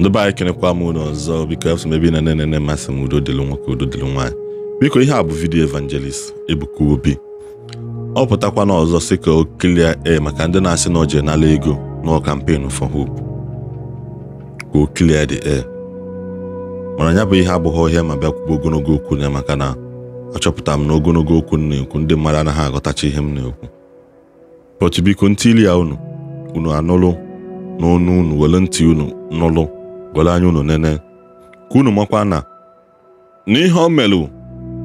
ndụba anyị kenekwa m ụlọ ọzọ biko afọ ebe ị na-ene mmasị m udo dịlụ nwoke udo dịlụ nwaanyị biko ihe a bụ vidiyo evangelist Ebuka Obi ọ pụtakwa n'ọzọ sị ka o kelie e eh, maka ndị na-asị na o n'ala ego n'ọ kampen for hope ka o kelie eh. the mana ya bụ ihe abụghị ọhịa ma bịakwuo ogologo okwu ya maka na achọpụtara m na ogologo okwu m na-ekwu ndị mmadụ anaghị aghọtacha ihe m na-ekwu pọtụ biko ntị ya unu unu anụlụ n'ọnụ unu were ntị unu nụlụ gọrọ anya unu nene ka unu makwa na n'ihe o melu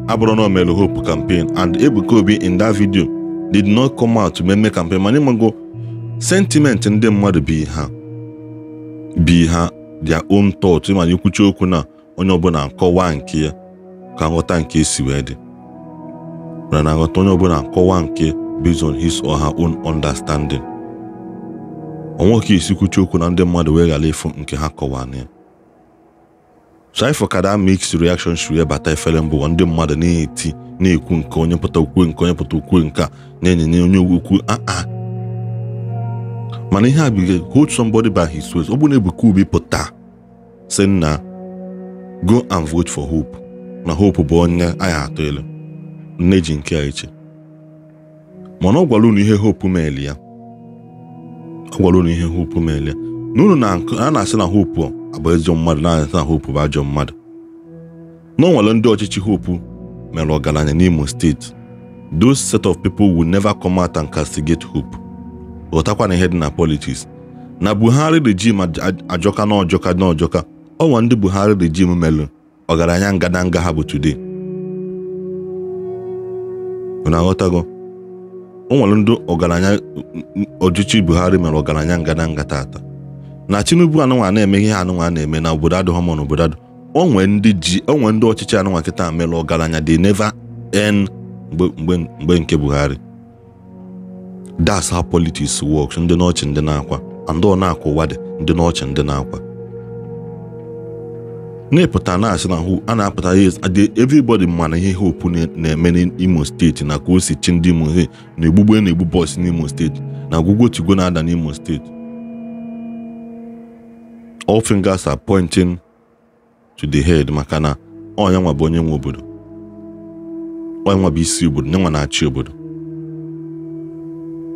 abụrụ na o hope campaign and Ebuka Obi in that video did not come out meme campaign mana ịmago sentiment ndị mmadụ bi ha bi ha their own thought mana ikwuchi okwu na onye ọbụla nkọwa nke ya ka nghọta nke esi wee dị mana na nghọta onye ọbụla nkọwa nke based on his or her own understanding onwe ka esi okwu na ndị mmadụ wee ghara ịfụ nke ha kọwana ya Saipho mix reaction shiri ebata efere mbụwa ndị mmadụ na-eti na-ekwu nke onye pụta ukwe nke onye pụta ukwe nke a na-enyenye onye ukwu aa mana ihe a biga hold somebody by his waist ọ na Ebuka Obi pụta sị na go and vote for Hope na Hope bụ onye anyị atụ elu nne ji nke a eche mana ọ gwara unu ihe Hope meeli ya ọ gwara unu ihe hopu meele na unu a na-asị na hopu abụ ezigbo mmadụ na-asị na hopu bụ ajọ mmadụ na nwere ndị ọchịchị hopu mere ọgaranya n'Imo steeti those set of people will never come out and castigate hope ghọtakwa na ihe dị na politics na Buhari regime ajọka na ọjọka na ọjọka ọnwa ndị Buhari regime melụ ọgaranya ngadanga ha bụ today unu aghọtago o nwere ọgaranya ọchịchị Buhari mere ọgaranya ngata tata na Tinubu anụnwa na-eme ihe anụnwa na-eme na obodo adịghọ mma na obodo adụ onwe ndị ji ndị ọchịchị anụnwa kịta mere ọgaranya dị neva en mgbe nke Buhari that's how politics works ndị n'ọchị ndị na-akwa and ọ na-akwa dị ndị n'ọchị ndị na-akwa na-epụta na-asị na a na-apụta everybody mana ihe hopu na-eme n'Imo steeti na ka o si chi ndị Imo na egbugbe na-egbu bọs n'Imo steeti na ọgwụgwọ tigwe na-ada n'Imo steeti all fingers are pointing to the head maka na ọnya nwa bụ onye nwe obodo ọnya nwa bụ isi obodo nye nwa na-achị obodo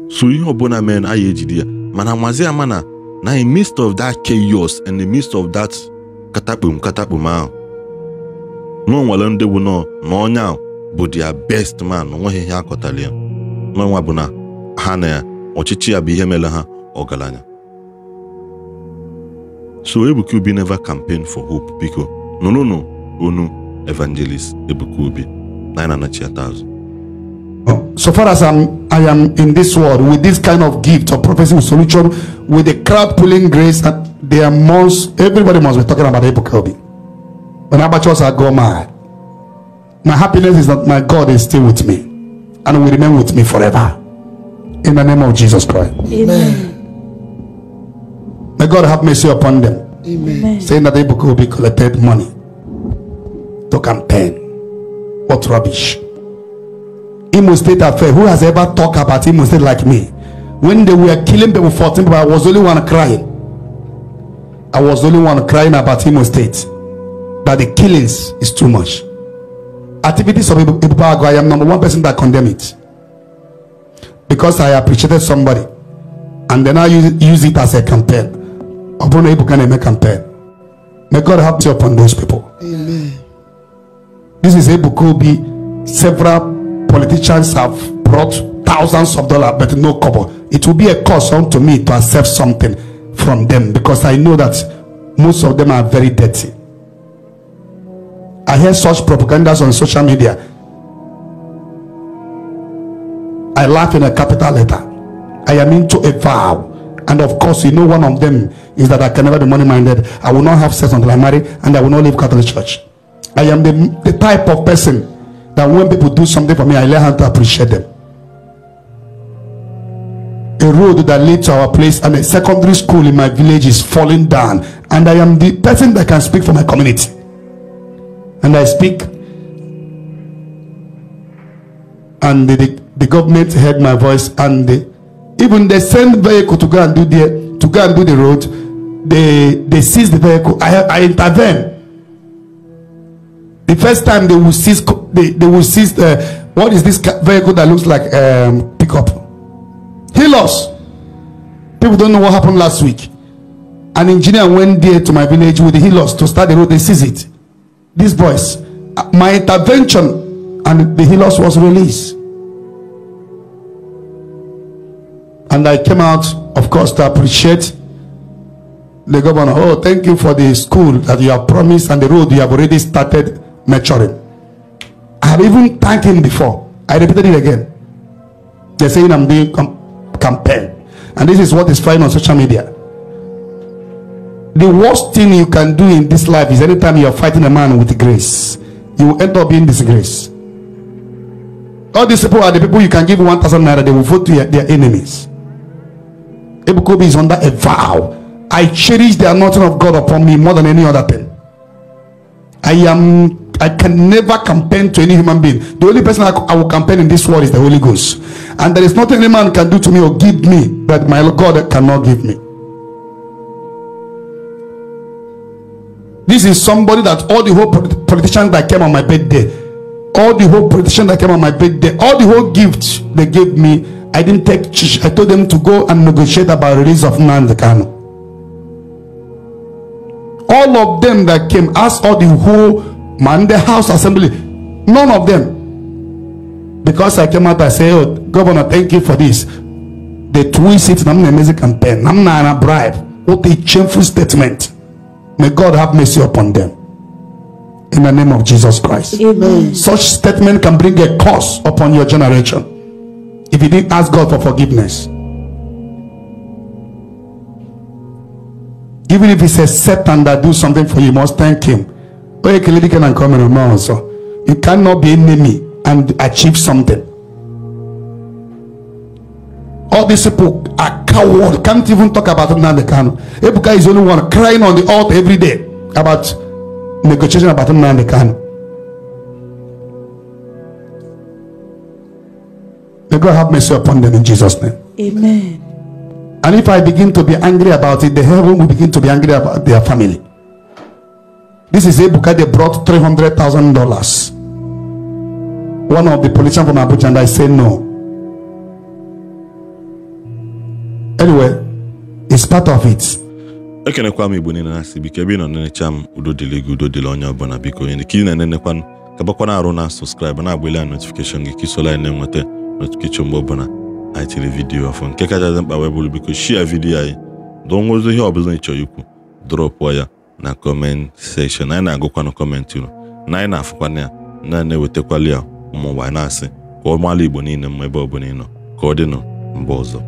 so ihe ọbụla mere na anyị ejide ya mana mazi ama na na in midst of that chaos and the midst of that katakpum katakpum ahụ na nwere ndị bụ nọ na onye ahụ bụ dia best man onweghị ihe akọtali ya n'ọnwa bụ na ha na ya ọchịchị ya bụ ihe mere ha ọgaranya so Ebuka Obi never campaign for hope biko nụrụnụ onu evangelist Ebuka Obi na nachi atazụ so far as I'm, I am in this world with this kind of gift of prophecy with solution, with the crowd pulling grace, and there must everybody must be talking about Abel Kelby. When amateurs are go mad, my happiness is that my God is still with me and will remain with me forever. In the name of Jesus Christ. Amen. May God have mercy upon them. Amen. Saying that Abel Kelby collected money, to campaign, what rubbish. Imo State affair. Who has ever talked about Imo State like me? When they were killing people, 14 people, I was only one crying. I was only one crying about Imo State. That the killings is too much. Activities of Ibubago, I am number one person that condemn it. Because I appreciated somebody. And then I use, use it as a campaign. Obuna Ibu can make campaign. May God help you upon those people. Amen. This is Ibu Kobi, several politicians have brought thousands of dollars, but no cover. It will be a cost unto me to accept something from them because I know that most of them are very dirty. I hear such propagandas on social media. I laugh in a capital letter. I am into a vow. And of course, you know, one of them is that I can never be money minded. I will not have sex until I marry, and I will not leave Catholic Church. I am the, the type of person that when people do something for me, I learn how to appreciate them. A road that leads to our place and a secondary school in my village is falling down, and I am the person that can speak for my community. And I speak, and the, the, the government heard my voice, and the, even they send vehicle to go and do the to go and do the road. They they seize the vehicle. I I intervene. The first time they will seize they, they will see the uh, what is this vehicle that looks like um, pickup. He lost. People don't know what happened last week. An engineer went there to my village with the Hilos to start the road. They seize it. These boys. Uh, my intervention and the Hilos was released. And I came out, of course, to appreciate the governor. Oh, thank you for the school that you have promised and the road you have already started maturing. I have even thanked him before. I repeated it again. They're saying I'm being com- compelled. And this is what is flying on social media. The worst thing you can do in this life is anytime you are fighting a man with grace, you end up being disgraced. All these people are the people you can give 1,000 naira, they will vote to your, their enemies. Ebukobi is under a vow. I cherish the anointing of God upon me more than any other thing. I am I can never campaign to any human being. The only person I, I will campaign in this world is the Holy Ghost. And there is nothing any man can do to me or give me that my God cannot give me. This is somebody that all the whole politicians that came on my birthday, all the whole politicians that came on my birthday, all the whole gifts they gave me, I didn't take. I told them to go and negotiate about release of Nand All of them that came asked all the whole Monday House Assembly. None of them. Because I came out, I said, oh, Governor, thank you for this. They twist it, I'm not amazing campaign. I'm not a bribe. What a shameful statement. May God have mercy upon them. In the name of Jesus Christ. Amen. Such statement can bring a curse upon your generation. If you didn't ask God for forgiveness. Even if it's a Satan that do something for you, you must thank him you cannot be enemy and achieve something all these people are coward can't even talk about Nnamdi Kanu Ebuka is the only one crying on the altar every day about negotiation about Nnamdi May God have mercy upon them in Jesus' name. Amen. And if I begin to be angry about it, the heaven will begin to be angry about their family. This is Ebuka. They brought three hundred thousand dollars. One of the politicians from Abuja and I said no. Anyway, it's part of it. ekenekwa m igbo niile na-asị ebe ị nọ nenecha m udo dịrị gị udo dịrị onye ọbụla biko onye ka ị na-enenekwa ka gbakwana arụ na sọskraịb na-agbali anyị notifikeshọn gị ka isola na-enweta notifikeshọn mgbe ọbụla anyị tiri vidiyo ọfụ nke kachasị mkpa wee bụrụ biko shia vidiyo anyị dụọ nwezo ihe ọbụla ị chọrọ ikwu dropụ ya na kọment na anyị na-agụkwanụ kọmentị unu na anyị na afụkwa ya na-ewetakwala ya ụmụ ụwa na-asị ka maala Igbo niile mma ebe ọ bụla ị nọ ka ọ dịnụ mba ọzọ